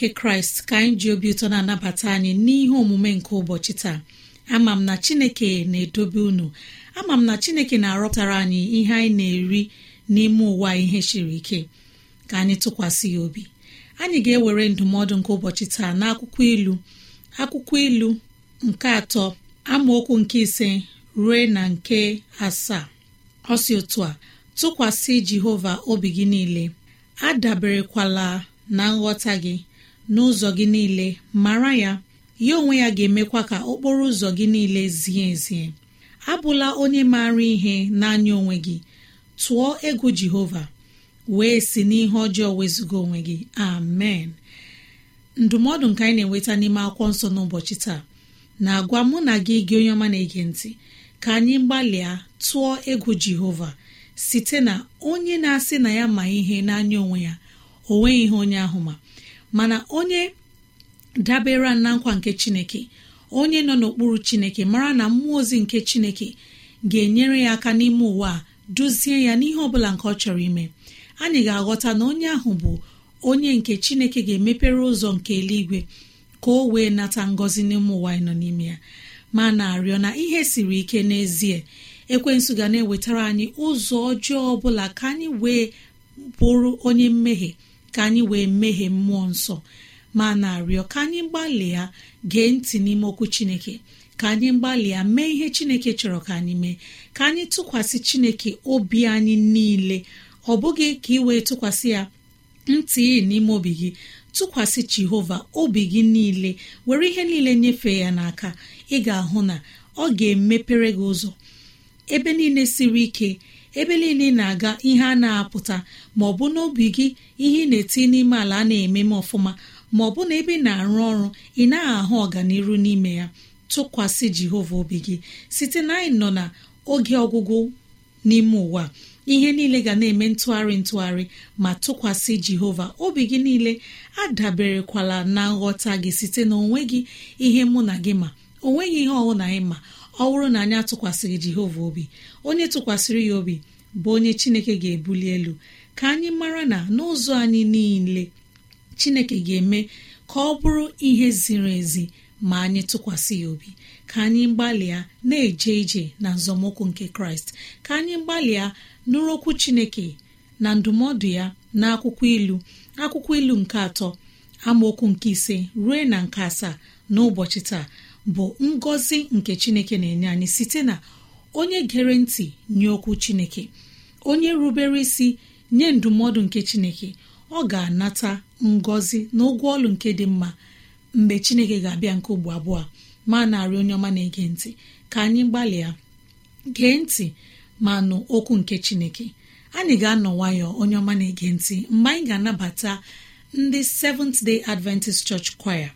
nke kraịst ka anyị ji obi ụtọ na-anabata anyị n'ihe omume nke ụbọchị taa ama m na chineke na-edobe unu ama m na chineke na-arọpụtara anyị ihe anyị na-eri n'ime ụwa ihe siri ike ka anyị tụkwasị ya obi anyị ga-ewere ndụmọdụ nke ụbọchị taa akwụkwọ ilu akwụkwọ ilu nke atọ amaokwu nke ise rue na nke asaa ọsi otu a tụkwasị jehova obi gị niile adaberekwala na nghọta gị n'ụzọ gị niile mara ya ya onwe ya ga-emekwa ka okporo ụzọ gị niile zie ezie abụla onye maara ihe n'anya onwe gị tụọ egwu jehova wee si n'ihe ọjọọ wezụga onwe gị amen ndụmọdụ nke anyị na-enweta n'ime akwụkwọ nsọ n'ụbọchị taa na-agwa mụ na gị gị onye ọma na-ege ntị ka anyị gbalịa tụọ egwu jehova site na onye na-asị na ya ma ihe n'anya onwe ya o nweghị ihe onye ahụ ma mana onye dabere na nkwa nke chineke onye nọ n'okpuru chineke mara na mmụọ ozi nke chineke ga-enyere ya aka n'ime ụwa a duzie ya n'ihe ọbụla nke ọ chọrọ ime anyị ga-aghọta na onye ahụ bụ onye nke chineke ga-emepere ụzọ nke eluigwe ka o wee nata ngọzi n'ime ụwa anyị nọ n'ime ya ma na-arịọ na ihe siri ike n'ezie ekwensu ga na-ewetara anyị ụzọ ọjọọ ọbụla ka anyị wee bụrụ onye mmehie ka anyị wee meghee mmụọ nsọ ma na-arịọ ka anyị gbalịa gee ntị n'ime okwu chineke ka anyị gbalịa mee ihe chineke chọrọ ka anyị mee ka anyị tụkwasị chineke obi anyị niile ọ bụghị ka ị wee tụkwasị ya ntị n'ime obi gị tụkwasị jehova obi gị niile were ihe niile nyefee ya n'aka ị ga-ahụ na ọ ga-emepere gị ụzọ ebe niile siri ike ebe niile ị na-aga ihe a na-apụta ma ọ bụ n'obi gị ihe ị na-eti n'ime ala a na-eme m ọfụma ma ọ bụ na ebe ị na-arụ ọrụ ị naghị ahụ ọganiru n'ime ya tụkwasị Jehova obi gị site na anyị nọ na oge ọgwụgwụ n'ime ụwa ihe niile ga na-eme ntụgharị ntụgharị ma tụkwasị Jehova obi gị niile adaberekwala na nghọta gị site na onwe gị ihe mụ na gị ma onweghị ihe ọwụ na anyị ma ọ bụrụ na anyị atụkwasịghị jehova obi onye tụkwasịrị ya obi bụ onye chineke ga-ebuli elu ka anyị mara na n'ụzọ anyị niile chineke ga-eme ka ọ bụrụ ihe ziri ezi ma anyị tụkwasị ya obi ka anyị gbalịa na-eje ije na nzọmụkwụ nke kraịst ka anyị gbalịa nụrụ okwu chineke na ndụmọdụ ya na akwụkwọ ilu akwụkwọ ilu nke atọ amaokwu nke ise ruo na nke asaa n'ụbọchị taa bụ ngọzi nke chineke na-enye anyị site na onye gere ntị nye okwu chineke onye rubere isi nye ndụmọdụ nke chineke ọ ga-anata ngọzi na ụgwọ ọlụ nke dị mma mgbe chineke ga-abịa nke ugbo abụọ ma narị onye ọma na-ege ntị ka anyị gbalịa gee ntị ma nụ okwu nke chineke anyị ga-anọ nwayọ onye ọma na-ege ntị mgbe anyị ga-anabata ndị Seventh Day Adventist Church Choir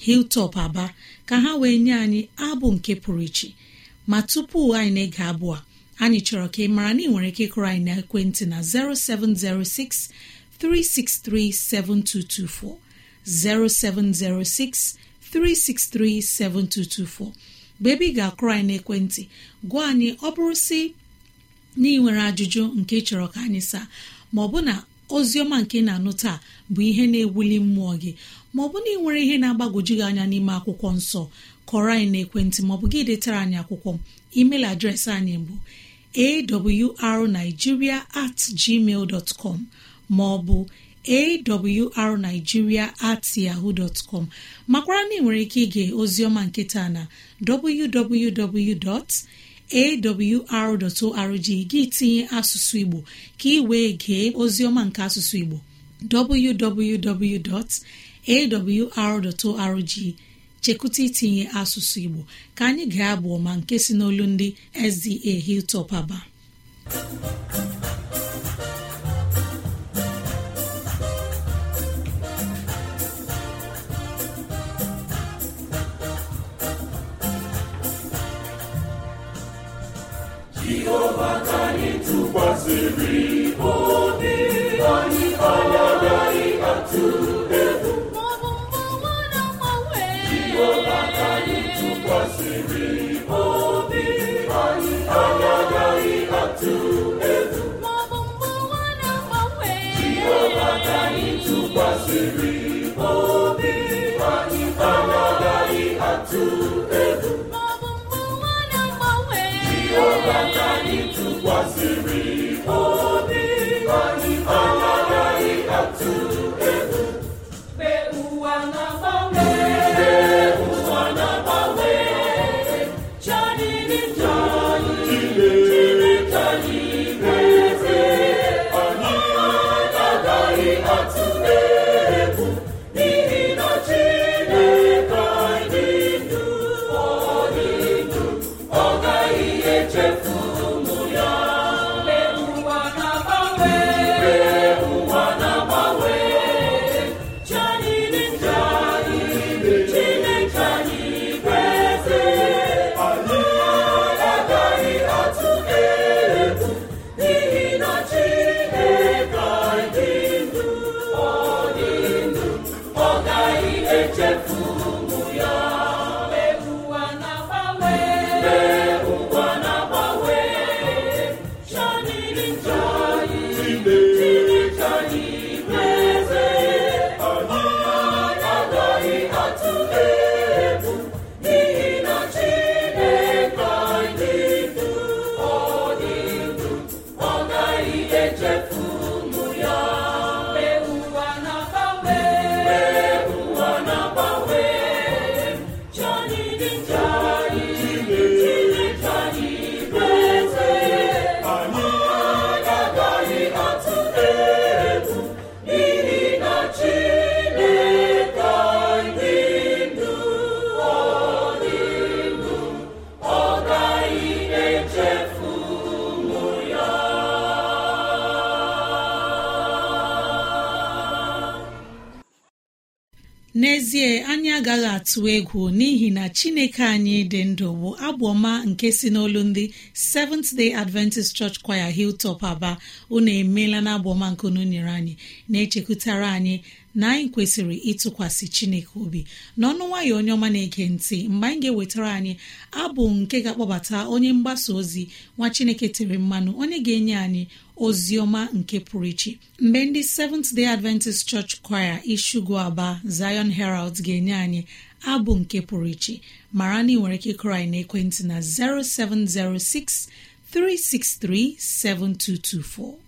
hiltop aba ka ha wee nye anyị abụ nke pụrụ iche ma tupu anyị na-ege abụ a anyị chọrọ ka ị mara na ị nwere ike ịkụrụ anyị na ekwentị na 0706 363 7224 0706 363 7224 mgbe ebe ị ga-akụrụ anyị n'ekwentị gwa anyị ọ bụrụ si na ị nwere ajụjụ nke chọrọ ka anyị saa ma ọ bụ na ozi ọma nke na-anụ taa bụ ihe na-ewuli mmụọ gị ma ọ bụ na ị nwere ihe na-agbagwoju anya n'ime akwụkwọ nsọ kọrọ anyị na ekwentị maọbụ gị detara anyị akwụkwọ email adreesị anyị bụ awrnigeria at gmail dot maọbụ awrnigeria at yahoo dot com makwara na ị nwere ike ige ozioma nketa na www. gị tinye asụsụ Igbo ka ị wee gee ozioma nke asụsụ Igbo awr.org chekwụta itinye asụsụ igbo ka anyị ga-abụ ọma nke si n'olu ndị sda hilltop aba jehova ka anyị tụkwasịrị obi anyị anya tụkwasịrị obi anyị anaghị atụ egwu echefu n'ezie anyị agaghị atụ egwu n'ihi na chineke anyị dị ndụ bụ agbọma nke si n'olu ndị Seventh Day Adventist Church Choir Hilltop Aba unu emeela na nke unu nyere anyị na-echekwutara anyị na anyị kwesịrị ịtụkwasị chineke obi n'ọnụ nwayọ onye ọma na-ege ntị mgbe anyị ga-ewetara anyị abụ nke ga-akpọbata onye mgbasa ozi nwa chineke tere mmanụ onye ga-enye anyị ozi ọma nke pụrụ iche mgbe ndị Seventh Day Adventist Church Choir Ishugu Aba Zion Herald ga-enye anyị abụ nke pụrụ iche mara na ị nwere ike ịkụrọ anyị ekwentị na 0706 363 7224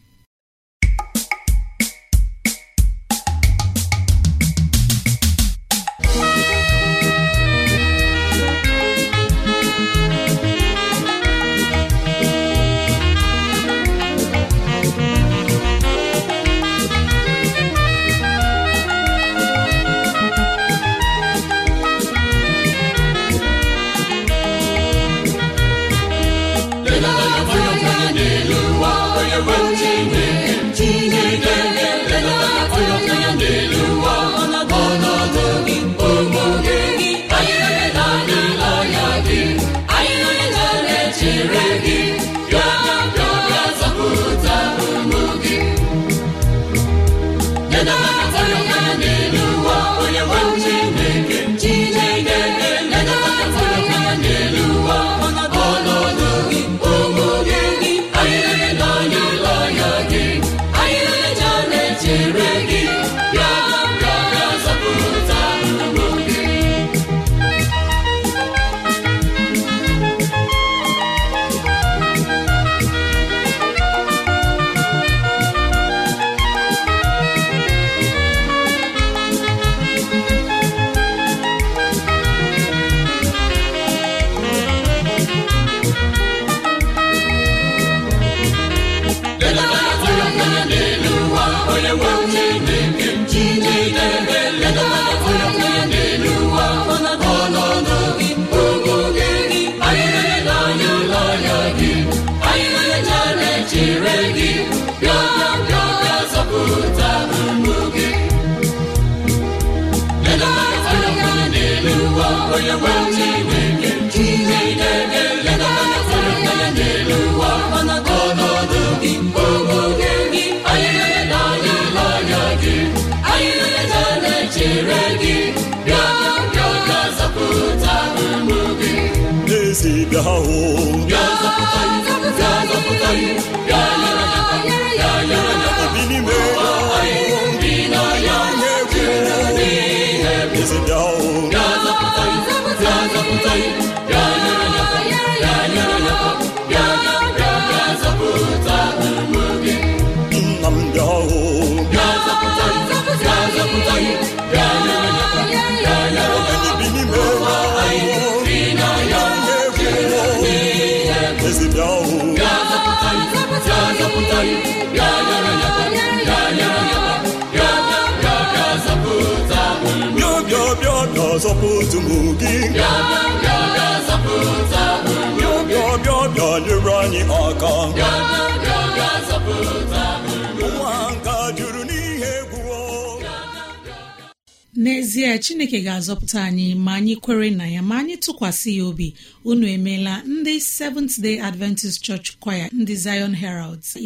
bịa bịa na gị bịa anyị n'ezie chineke ga-azọpụta anyị ma anyị kwere na ya ma anyị tụkwasị ya obi unu emeela ndị Seventh Day Adventist Church ndị Zion Heralds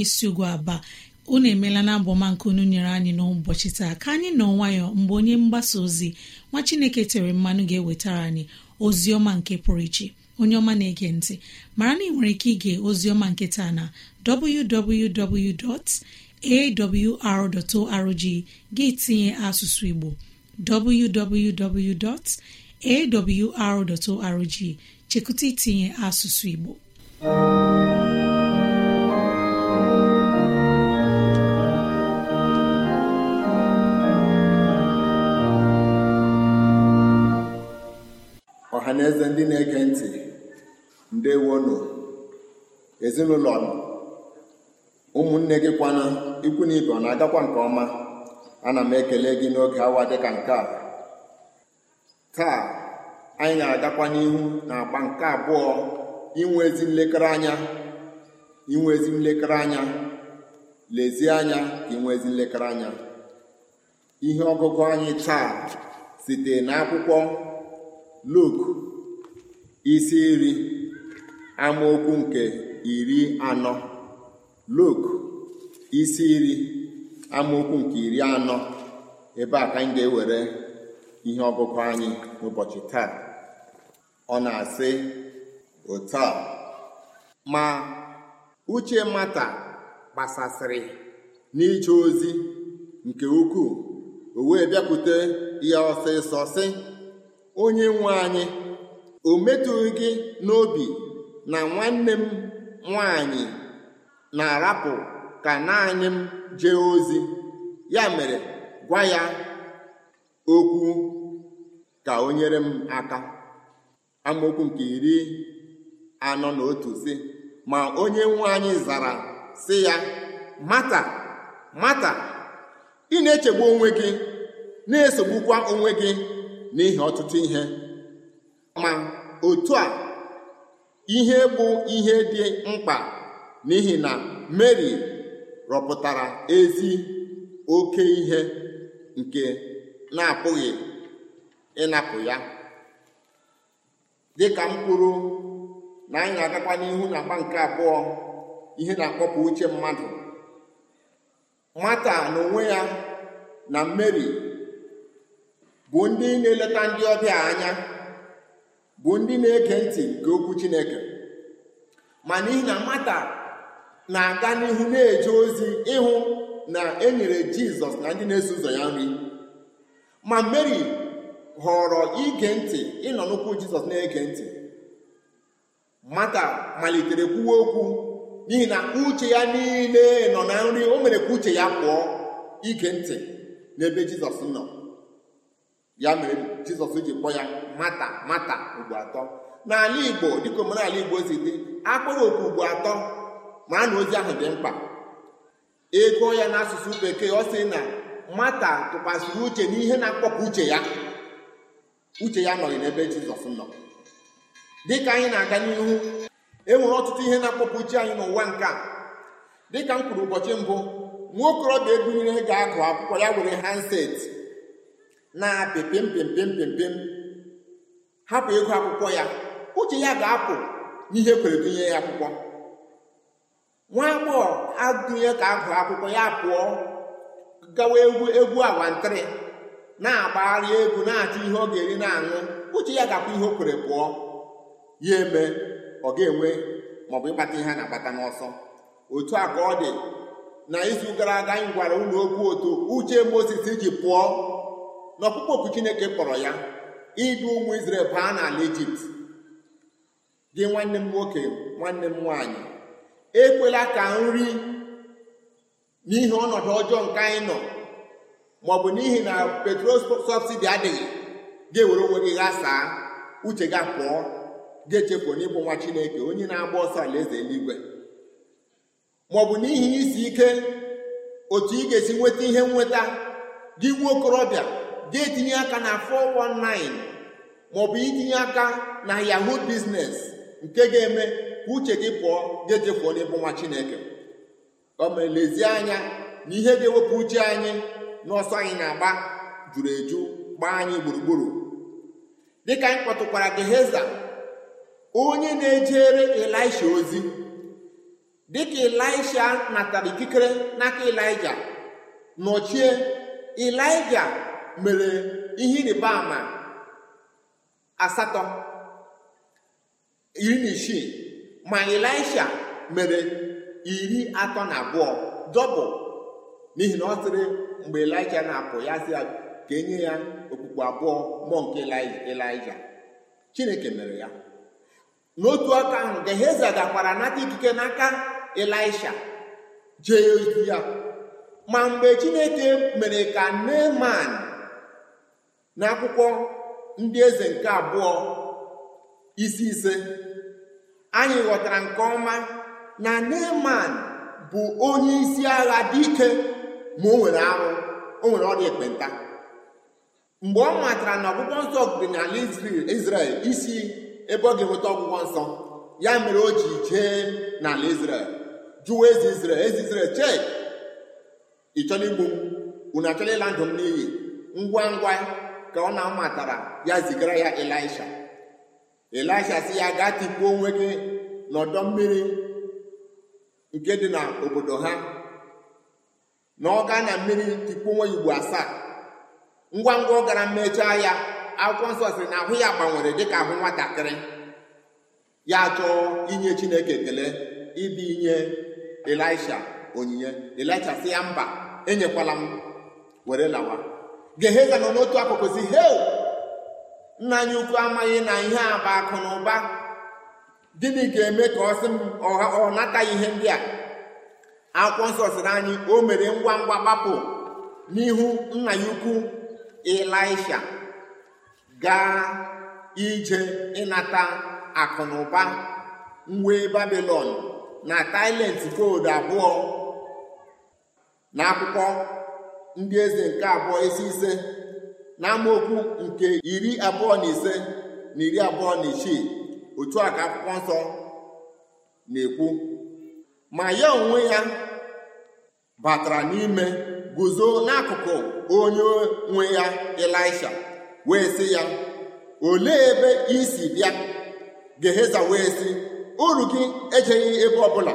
unu emeela na abụọma nke unu nyere anyị n'ụbọchị taa ka anyị nọ nwayọ mgbe onye mgbasa ozi nwa chineke tere mmanụ ga-ewetara anyị ozi ọma nke pụrụ iche onye ọma na-ege ntị mara na ị nwere ike ige ozi ọma nke taa na www.awr.org gị tinye asụsụ igbo www.awr.org chekụta itinye asụsụ igbo ndị na-ege ntị wono ezinụlọ ụmụnne gị kwana ikwu na ibe ọ na-agakwa nke ọma ana m ekele gị n'oge awa dị ka nke a taa anyị na-agakwa n'ihu na agba nke abụọ inwe ezi nlekere anya inwe ezi nlekere anya lezie anya inwezi inwe ezi nlekere anya ihe ọgụgụ anyị taa site n'akwụkwọ isi iri amaokwu nke iri anọ luk isi iri amaokwu nke iri anọ ebe a ka anyị ga-ewere ihe ọgụgụ anyị n'ụbọchị taa ọ na-asị otu a ma uche mata gbasasịrị n'ije ozi nke ukwuu o wee bịakwute ya ọsịsọ sị onye nwe anyị o metụghị gị n'obi na nwanne m nwanyị na-arapụ ka naanị m jee ozi ya mere gwa ya okwu ka o nyere m aka amaokwu nke iri anọ na otu si ma onye nwe anyị zara si ya mata mata ị na-echegbu onwe gị na-esogbukwa onwe gị n'ihi ọtụtụ ihe ma otu a ihe bụ ihe dị mkpa n'ihi na Meri rọpụtara ezi oke ihe nke na-apụghị ịnapụ ya dịka m kwuru na anyị na-agakwa n'ihu na agba nke abụọ ihe na-akpọpụ uche mmadụ mata n'onwe ya na Meri bụ ndị na-eleta ndị ọbịa anya bụ ndị na-ege ntị nke okwu Chineke ma n'ihi na mata na-aga n'ihu na-eje ozi ịhụ na e nyere Jizọs na ndị na-eso ụzọ ya nri ma Mary họrọ ige ntị ịnọ n'ụkwụ Jizọs na-ege ntị mata malitere kwuwe okwu n'ihi na uche ya niile nọ na nri o mere ka uche ya pụọ ige ntị n'ebe Jizọs nọ ya mere Jizọs ji kpọ ya mata mata ugbo atọ n'ala igbo dịka omenala igbo si dị akpọrọ oku ugbo atọ ma na ozi ahụ dị mkpa ego ya n'asụsụ bekee ọ sị na mata tụkwasịrị uche n'ihe na-akpọpụ uche ya uche ya nọghị n'ebe jizọs nọ dịka anyị na-aga n'ihu enwere ọtụtụ ihe na-akpọpụ uche anyị n'ụwa nke a dịka m kwuru ụbọchị mbụ nwa okorobịa ebunyere ga-agụ akwụkwọ ya were handset na pịpịm pempem pịm hapụ ịgụ akwụkwọ ya uche ya ga-apụ n'ihe kwere dụnye ya akwụkwọ nwa agbọghọ agụnye ka agụ akwụkwọ ya pụọ gawa egwu egwu awantịrị na-agbagharị egwu na-achọ ihe ọ ga-eri na-aṅụ uche ya ga-apụ ihe o kwere pụọ ya eme ọ ga-enwe maọbụ ịkpata ihe a na-akpata n'ọsọ otu a ka ọ dị na izu gara aga anyị gwara ụlọ okwu otu uche Mozis iji pụọ n'ọkpụkpọ okwu Chineke kpọrọ ya idu ụmụ Izrel baa n'ala Ijipt gị nwanne m nwoke nwanne m nwaanyị ekwela ka nri n'ihi ọnọdụ ọjọọ nke anyị nọ maọbụ n'ihi na petrol sọbsidi adịghị ga-ewere onwe gị ghasaa uche ga pụọ ga-echepụ n'ịbụ nwa Chineke onye na-agba ọsọ alaeze eluigwe maọbụ n'ihi isi ike otu ị ga-esi nweta ihe nweta gị nwa okorobịa ga-etinye aka na 419 maọbụ itinye aka na yahoo biznes nke ga-eme ka uche gị pụọ ga-ejefuo n'ebe nwa chineke o mere anya na ihe ga-ewepụ uche anyị na ọsọ anyị na-agba juru eju gbaa anyị gburugburu dịka anyị kpọtụkwara Geheza onye na-ejere elisha ozi dịka na natara ikikere n'aka Ịlaịja nọchie Ịlaịja mere ihe ịrịba ama asatọ iri na isii ma elisha mere iri atọ na abụọ dọbụ n'ihi na ọ sịrị mgbe elisha na-apụ ya sị ya ka enye ya okpukpe abụọ mmụọ nke Ịlaisha Chineke mere ya n'otu aka ahụ Geheza gakwara nata ikike n'aka elisha jee ozi ya ma mgbe Chineke mere ka Neman n'akwụkwọ ndị eze nke abụọ isi ise anyị ghọtara nke ọma na Neman bụ onye isi agha dị ike ma o nwere arụ o nwere ọrịa ekpenta mgbe ọ matara na ọgwụgwọ nsọ dị n'ala Izrel isi ebe ọ ga-enweta ọgwụgwọ nsọ ya mere o ji jee n'ala Izrel jụwa eze Izrel eze Izrel chee ị igbu m unu ịla ndụ m n'iyi ngwa ngwa ka ọ na-amatara ya zigara ya elisha elisha si ya gaa tikpuo onwe gị n'ọdọ mmiri nke dị n'obodo ha na ọ mmiri tikpuo onwe igbo asaa ngwa ngwa ọ gara mmechaa ya akwụkwọ nsọ na ahụ ya gbanwere dịka ahụ nwatakịrị ya chọọ inye Chineke ekele ibi inye elisha onyinye elisha si ya mba enyekwala m were lawa geheza nọ n'otu akụkụ si hei nna anyị ukwu amaghị na ihe a bụ akụ na ụba gịnị ga-eme ka ọ sị m ọ nataghị ihe ndị a akwụkwọ nsọ sịrị anyị o mere ngwa ngwa gbapụ n'ihu nna ya ukwu ịlaisha gaa ije ịnata akụ na ụba wee babilon na tailent koodu abụọ na ndị eze nke abụọ isi ise na amaokwu nke iri abụọ na ise na iri abụọ na isii otu a ka akwụkwọ nsọ na-ekwu ma ya onwe ya batara n'ime guzo n'akụkụ onye nwe ya elisha wee sị ya olee ebe isi si bịa Geheza wee sị uru gị ejeghị ebe ọbụla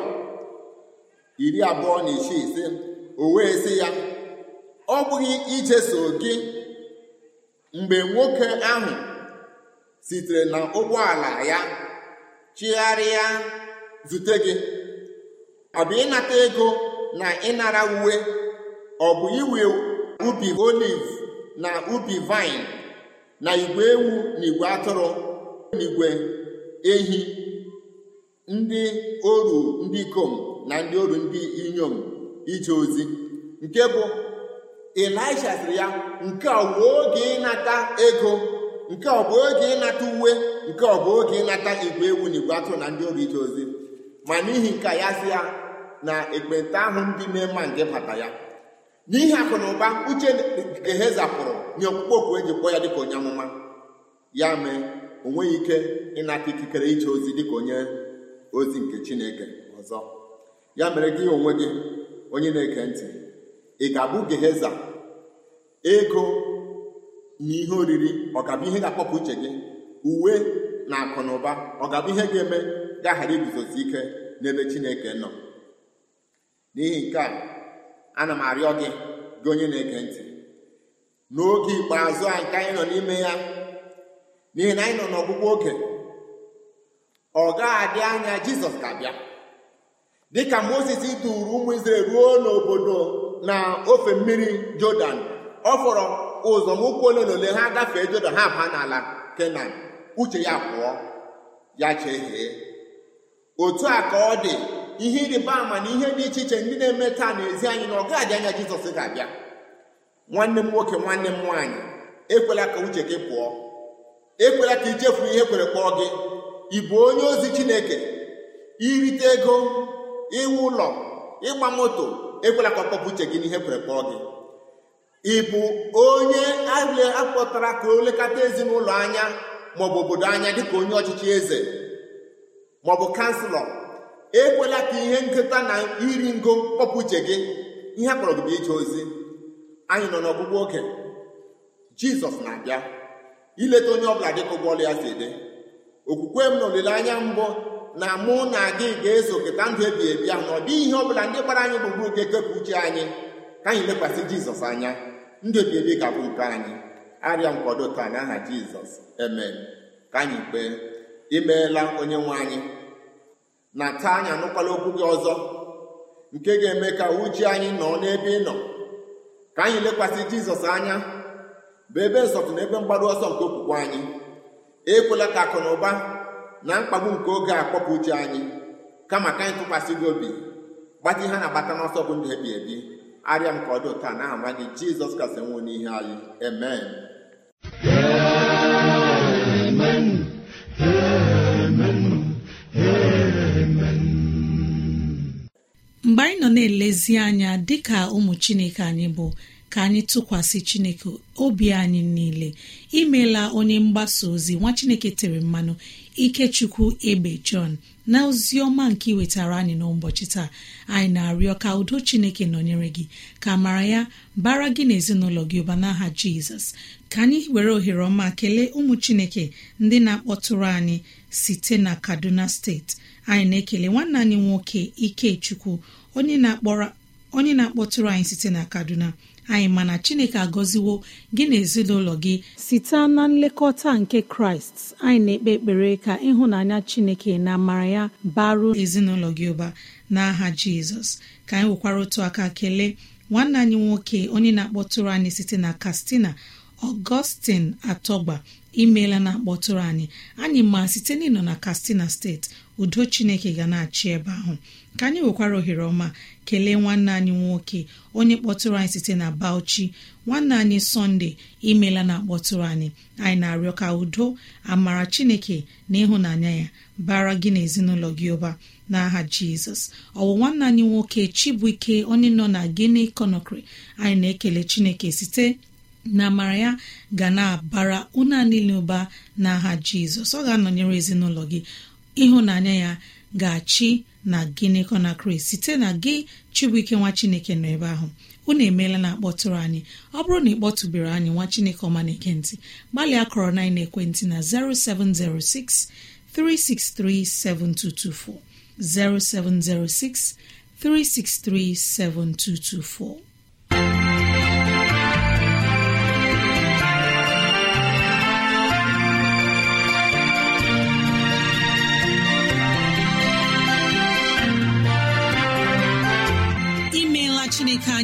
iri abụọ na isii ise o wee sị ya ọ bụghị ijeso gị mgbe nwoke ahụ sitere na ụgbọala ya chigharịa zute gị ọ bụ ịnata ego na ịnara uwe ọ bụ iwe ubi oliv na ubi vaịn na igwe ewu na igwe atụrụ na igwe ehi ndị oru ndị ikom na ndị oru ndị inyom ije ozi nke bụ Elisha sịrị ya nke ọ bụ oge ịnata ego nke ọ bụ oge ịnata uwe nke ọ bụ oge ịnata igwe ewu na igwe atụ na ndị oru ije ozi ma n'ihi nke ya sị ya na ekpenta ahụ ndị na-ema nke bata ya n'ihi akụ na ụba uche ehe zapụrụ nye okpukpe okwu eji kpọọ ya dịka onye amụma ya mee o nweghị ike ịnata ikikere ije ozi dịka onye ozi nke chineke ọzọ ya mere gị onwe gị onye na eke ntị ị ga-abụ geheza ego na ihe oriri ọ ga ihe ga-akpọpụ uche gị uwe na akụ na ụba ọ ga ihe ga-eme gaghara iguzosi ike n'ebe chineke nọ n'ihi nke a ana m arịọ gị gị onye na-ege ntị n'oge ikpeazụ a nke anyị nọ n'ime ya n'ihi na anyị nọ n'ọgwụgwọ oge ọ ga-adị anya jizọs ga-abịa dịka Mozis duru ụmụ Izrel ruo n'obodo na ofe mmiri jọdan ọ fọrọ ụzọ ụzọmụkwụ ole na ole ha gafee jọdan ha baa n'ala kenan uche ya pụọ ya chee chehie otu a ka ọ dị ihe ịrịba ama na ihe dị iche iche ndị na-eme taa n'ezi anyị na ọ gaghị anya jizọs ga-abịa nwanne m nwoke nwanne m nwaanyị ekwela ka uche gị pụọ ekwela ka ichefu ihe kwere kpọọ gị ị onye ozi chineke irite ego ịwụ ụlọ ịgba moto ekwela ka ọ kpọpụ uche gị n'ihe e kwere kpọọ gị ị bụ onye akpọtara ka o lekọta ezinụlọ anya maọbụ obodo anya dịka onye ọchịchị eze maọbụ kanselọ ekwela ka ihe nketa na iri ngo kpọpụ uche gị ihe akpọrọ gị bụ ije ozi anyị nọ n'ọgwụgwụ oge jizọs na-abịa ileta onye ọbụla dịka ụgbọọlụ ya si dị okwukwe m na olileanya mbụ na mụ na gị ga-eso keta ndụ ebi ebi ahụ na ọ dịghị ihe ọ bụla ndị gbara anyị gburugburu ga-ekepụ uche anyị ka anyị lekwasị jizọs anya ndụ ebi ebi ga-abụ nke anyị arịa nkwado taa aha jizọs emee ka anyị kpee imeela onye nwe anyị na taa anyị anụkwala okwu gị ọzọ nke ga-eme ka uche anyị nọ n'ebe ị nọ ka anyị lekwasị jizọs anya bụ ebe nsọtụ na ebe mgbaru ọsọ nke okwukwe anyị ekwela ka akụ na ụba na mkpagbu nke oge a kpọpụ uche anyị kama ka anyị tụkwasị gị obi gbata ihe na-agbata n'ọsọ bụ ndụ ebi ebi arịa m ka ọ dị ụta n'aha nwa gị jizọs kasị nwụ n'ihe anyị amen mgbe anyị nọ na-elezi anya dịka ụmụ chineke anyị bụ ka anyị tụkwasị chineke obi anyị niile imeela onye mgbasa ozi nwa chineke tere mmanụ ikechukwu ebe Jọn na ozi ọma nke wetara anyị n'ụbọchị taa anyị na-arịọ ka udo Chineke nọnyere gị ka mara ya bara gị na ezinụlọ gị ụba n'aha Jizọs ka anyị were ohere ọma kelee ụmụ Chineke ndị na-akpọtụrụ anyị site na Kaduna steeti anyị na-ekele nwanne anyị nwoke Ikechukwu onye na-akpọtụrụ anyị site na Kaduna anyị mana chineke agọziwo gị na ezinụlọ gị site na nlekọta nke kraịst anyị na-ekpe ekpere ka ịhụnanya chineke na amara ya baruo ezinụlọ gị ụba n'aha jizọs ka anyị nwekwara otu aka kelee nwanne anyị nwoke onye na-akpọtụrụ anyị site na katsina ọgọstin atọgba imeela na-akpọtụrụ anyị anyị ma site n'ịnọ na katsina steeti udo chineke ga na-achị ebe ahụ ka anyị nwekwara ohere ọma kelee nwanne anyị nwoke onye kpọtụrụ anyị site na bauchi nwanne anyị sọnde imeela na-akpọtụrụ anyị anyị na-arịọ ka udo amara chineke na ịhụnanya ya bara gị na ezinụlọ gị ụba n'aha jizọs ọwụ nwanne anyị nwoke chibụike onye nọ na gini conakry anyị na-ekele chineke site na amara ya ga na-abara ụna niile ụba n'aha jizọs ọ ga-anọnyere ezinụlọ gị ịhụnanya ya ga-achị na gịnịkọ na kraịst site na gị chibuike nwa chineke nọ ebe ahụ unu emeela na akpọtụrụ anyị ọ bụrụ na ịkpọtụbere anyị nwa chineke ọma na ekentị gbalịa kọrọ na ekwentị na 0706 363 7224 0706 363 7224